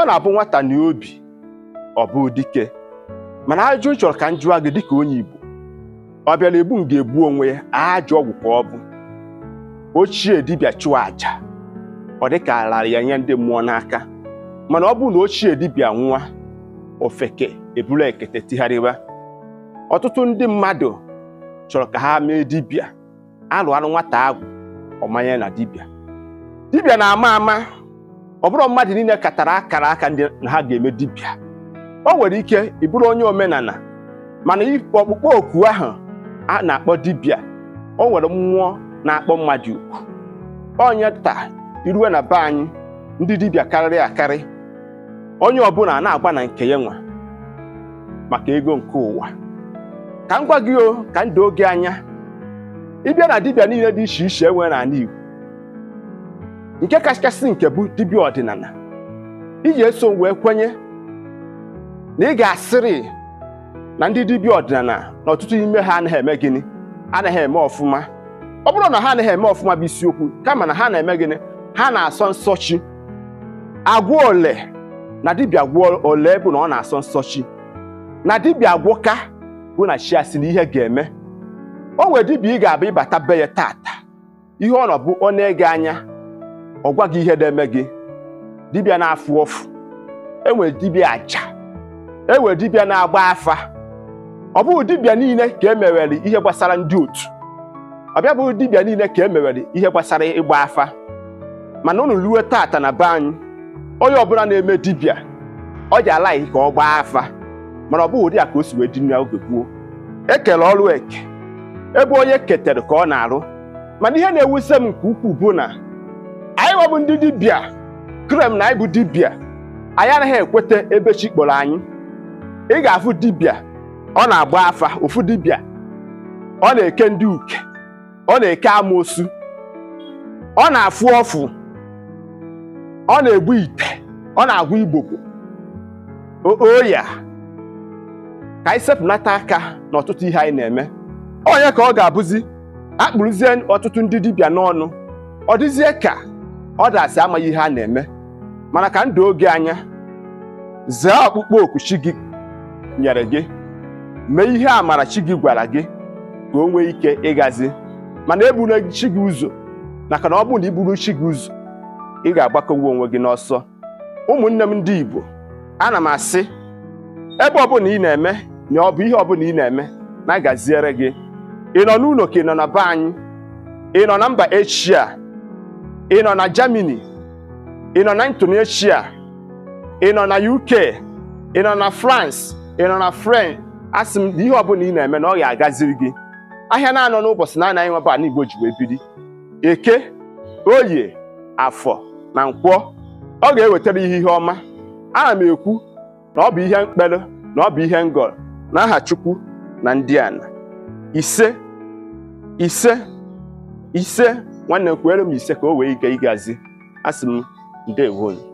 ọ na-abụ nwata n'obi ọ bụ dike mana ajụ chọrọ ka m jụọ gị dịka onye Igbo ọ bịa na-egbu m ga-egbu onwe ya ajụ ọgwụ ka ọ bụ ochie dibịa chụọ àjà ọ dị ka alara ya nye ndị mmụọ n'aka mana ọ bụrụ na ochie dibịa nwa ofeke eburu ekete tigharịwa ọtụtụ ndị mmadụ chọrọ ka ha mee dibịa alụ alụ nwata agwụ ọmanya na dibịa dibịa na-ama ama ọ bụrụ mmadụ niile katara akara aka ndị ha ga-eme dibịa o nwere ike ịbụrụ onye omenala mana ọkpụkpọ oku ahụ a na-akpọ dibịa o nwere mmụọ na-akpọ mmadụ ukwu onye taa iruwe na be anyị ndị dibịa karịrị akarị onye ọbụla na-agba na nke ya nwa maka ego nke ụwa ka m gwa gị o ka m oge gị anya ịbịa na dibịa niile dị iche iche enwe n'ala Igbo nke kachasị nke bụ dibịa ọdịnala iji eso wee kwenye na ị ga-asịrị na ndị dibịa ọdịnala na ọtụtụ ime ha anaghị eme gịnị anaghị eme ọfụma ọ bụrụ na ha anaghị eme ọfụma bụ isiokwu kama na ha na-eme gịnị ha na-asọ nsọ chi ole na dibịa gwọ ole bụ na ọ na-asọ nsọ chi na dibịa gwọka bụ na chi asị na ihe ga-eme o nwere dibịa ị ga-abụ ịbata be ya taata ihe ọ nọ bụ ọ na-ege anya ọ gwa gị ihe na-eme gị dibịa na-afụ ọfụ enwere dibịa aja enwere dibịa na-agba afa ọ bụghị dibịa niile ka e mewere ihe gbasara ndị otu ọ bịa bụghị dibịa niile ka e mewere ihe gbasara ịgba afa mana unu ruo tata na be anyị onye ọbụla na-eme dibịa ọ ji alaghị ka ọ gbaa afa mana ọ bụghị ụdị a ka o si wee dị n'oge gboo ekele ọrụ eke ebe onye ketere ka ọ na-arụ mana ihe na-ewuse m nke ukwuu bụ na nwa bụ ndị dibịa krem na anyị bụ dibịa anyị anaghị ekweta ebe chi kpọrọ anyị ị ga-afụ dibịa ọ na-agba afa ofu dibịa ọ na-eke ndị uke ọ na-eke amoosu ọ na-afụ ọfụ ọ na-egbu ite ọ na-agwa igbogbo oya ka anyị sepụnata aka n'ọtụtụ ihe anyị na-eme onye ka ọ ga-abụzi akpụrụzie ọtụtụ ndị dibịa n'ọnụ ọ dịzie ka ọ dasị amaghị ihe a na-eme mana ka ndụ oge anya zee ọkpụkpọ oku chi gị nyere gị mee ihe amara chi gị gwara gị ka o nwee ike ịgazi mana ebula chi gị ụzọ maka na ọ bụrụ na i buru chi gị ụzọ ị ga-agbakọwa onwe gị n'ọsọ ụmụnne m ndị Igbo ana m asị ebe ọbụla ị na-eme na ọ bụ ihe ọbụla ị na-eme na-agaziere gị ị nọ n'ụlọ ka ị nọ na be anyị ị nọ na mba echia ị nọ na Germany ị nọ na Indonesia ị nọ na UK ị nọ na France ị nọ na French asị m na ihe ọbụla ị na-eme na ọ ga-agaziri gị ahịa na-anọ n'ụbọchị na-anaghị nweba ala Igbo ji wee biri eke oye afọ na nkwọ ọ ga-ewetara ihe ihe ọma ana m ekwu na ọ bụ ihe mkpere na ọ bụ ihe na aha Chukwu na ndị ana ise ise ise nwanne m m ise ka o wee ike ịgazi asị m ndewo